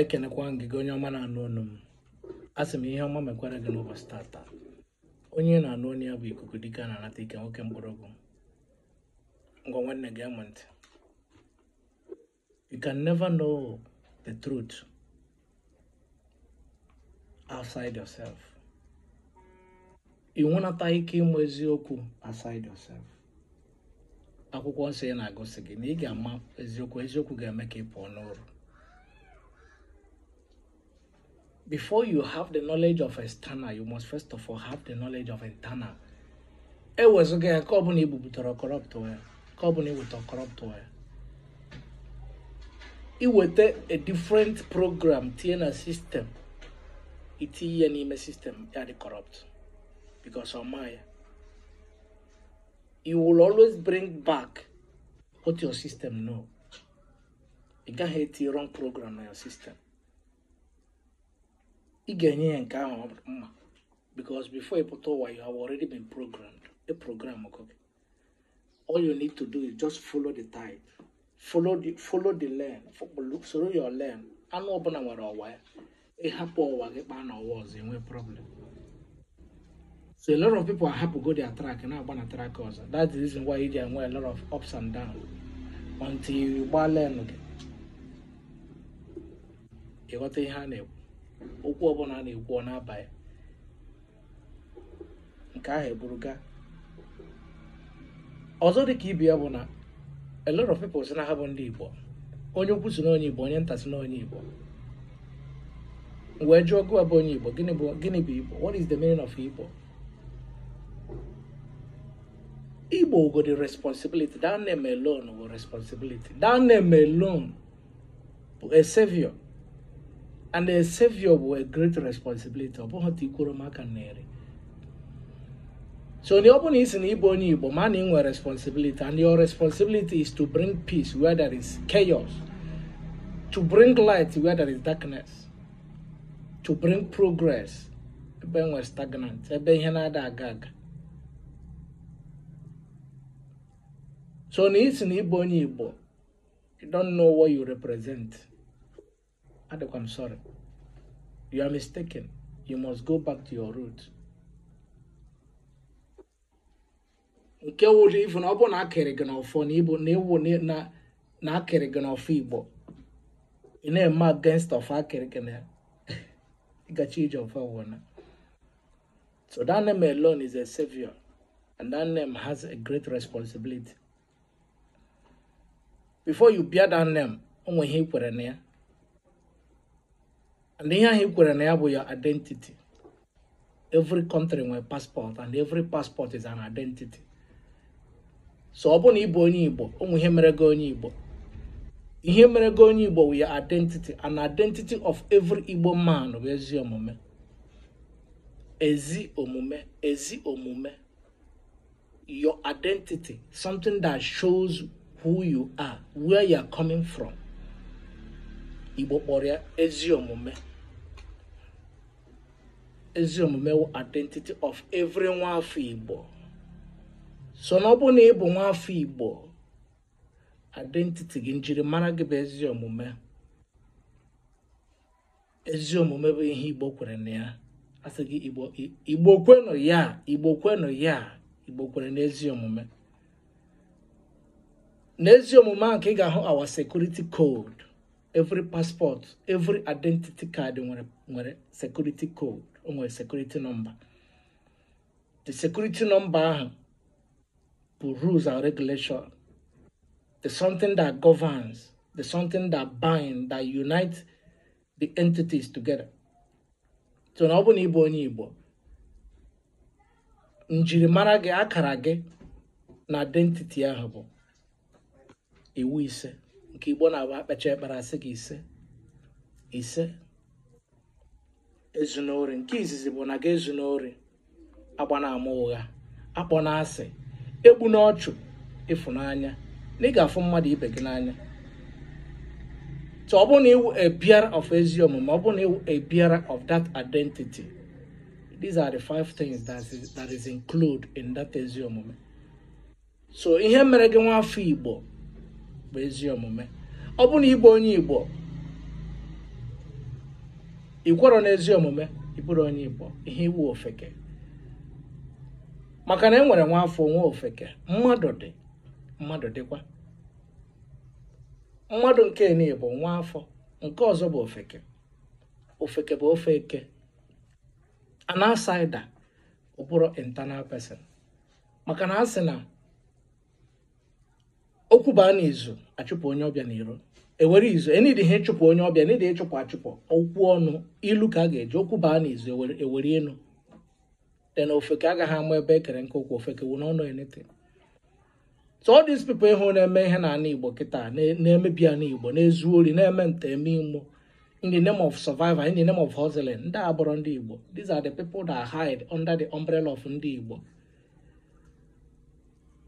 ekenekwa m gị gị onye ọma na-anụ ọnụ m a sị m ihe ọma mekwara gị n'ụbọchị tata onye na-anụ ọnụ ya bụ ikuku dike na-anata ike nwoke mkpọrọgwụ ngwa nwanne gị amụ ntị you can never know the truth outside yourself ị nwenata ike ịmụ eziokwu outside yourself akwụkwọ nsọ ya na-agụsị gị na ị ga-ama eziokwu eziokwu ga-eme ka ị pụọ n'ụrụ before you have the knowledge of external, you must first of all have the knowledge of internal. E It was ka ọ corrupt wee ka ọ bụla iweta corrupt a different program TNA system it is an email system ya corrupt because of my. you will always bring back what your system know can't gaghị etinye wrong program in your system ị ga-enye ya nke ahụ mma because before ị pụta ụwa you have already been programmed a program go all you need to do is just follow the tide follow the follow the lane soro your learn, anụ ọbụla nwere ọwa ya ịhapụ ọwa gị kpaa na ọwa ọzọ enwe problem so a lot of people are happy go their track na-agba na track ọzọ that's the reason why they enwe a lot of ups and downs until you gbaa lane gị ịghọta ihe a na-ekwu okwu ọbụla na-ekwu ọ na nke ahụ eburuga ọzọ dị ka ibe ya bụ na a lot of people si na ha bụ ndị Igbo onye ukwu si n'onye Igbo onye nta si n'onye Igbo wee jụọ gụwa bụ onye Igbo gịnị bụ gịnị bụ Igbo what is the meaning of Igbo Igbo go the responsibility that name alone go responsibility that name alone bụ a savior and a savior with a great responsibility so ọ bụla isi na ịbụ onye igbo ma na responsibility and your responsibility is to bring peace where there is chaos to bring light where there is darkness to bring progress we're stagnant ebe ihe na-ada aga aga so it's isi na you don't know what you represent Adok, I'm sorry. You are mistaken. You must go back to your root. nke wụrụ ifu na ọ bụ na akịrị gị n'ọfọ na igbo na ewu na akịrị gị n'ọfọ igbo ị na-eme against of akịrị gị na ịgachi ije ọfọ wụna so that name alone is a savior and that name has a great responsibility before you bear that name o nwe ihe ị kwere na ya na ihe ahụ kwere na ya bụ your identity every country nwere passport and every passport is an identity so ọ bụ na ị onye Igbo ụmụ ihe mere gị onye Igbo ihe mere gị onye Igbo with your identity and identity of every Igbo man bụ ezi omume ezi omume ezi omume your identity something that shows who you are where you are coming from Igbo kpọrọ ya ezi omume ezi omume identity of every nwafọ igbo so na ọ bụ na ị bụ nwafọ igbo identity gị njirimara gị bụ ezi omume ezi omume bụ ihe igbo kwere na ya asị gị igbo kwenụ ya igbo kwenụ ya igbo kwere na ezi omume na ezi omume ahụ ka ị ga-ahụ awa security code every passport every identity kaadị nwere nwere security code o nwere security number the security number ahụ bụ rules and regulation the something that governs the something that bind that unite the entities together so na ọ bụ na ịbụ onye igbo njirimara gị akara gị na identity ahụ bụ iwu ise nke igbo na-abụ akpacha ekpere asị gị ise ise ezunori nke izizi bụ na gị ezunori na ama ụgha akpọ na asị egbu n'ọchụ ịfụnanya na ị ga-afụ mmadụ ibe gị n'anya so ọ bụ na iwu a bearer of ezi omume ọ bụ na iwu a of that identity these are the five things that is, that is in that ezi omume so ihe mere gị nwa afọ igbo bụ ezi omume ọ bụ na ịbụ onye igbo ịkwọrọ n'ezi omume ịbụrụ onye igbo ihe iwu ofeke maka na enwere nwere nwa afọ nwa ofeke mmadụ dị mmadụ dịkwa mmadụ nke niile bụ nwa afọ nke ọzọ bụ ofeke ofeke bụ ofe eke an ụbụrụ ọ bụrụ person maka na a sị na okwu baa na achụpụ onye ọbịa n'iro ewere izu enidi ihe chụpụ onye ọbịa e n'idi ịchụpụ achụpụ okwu ọnụ ilu ka a ga-eji okwu baa na izu ewere e enu then ofeke agaghị ama ebe ekere nke okwu ofeke wụ n'ọnụ enete so all these people ịhụ na-eme ihe na ana igbo kịta na-emebi ana igbo na-ezu ori na-eme nta eme imo in the name of survival in the name of hustling ndị abụrụ ndị igbo these are the people that hide under the umbrella of ndị igbo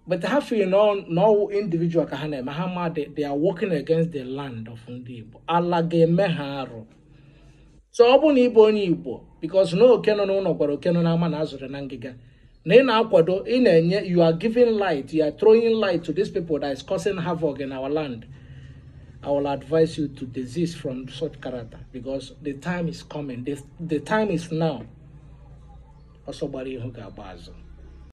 But have you know, no individual kahane Mahama, they, are working against the land of Ndibo. Alage So ọbụ ni ịbụ ni Igbo because no okeno no no gwara okeno n'ama na azụrụ na ngịga na i na-akwado ina na-enye you are giving light you are throwing light to these people that is causing havoc in our land. I will advise you to desist from such character because the time is coming. The, the time is now. ọsọ gbara ihu ga